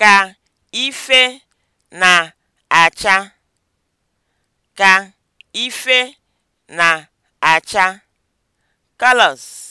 ka ife na-acha ka ife na-acha (colours)